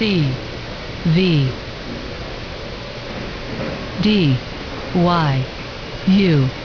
C V D Y U